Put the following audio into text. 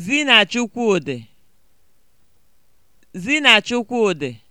Zinachikwudị Zinachikwudị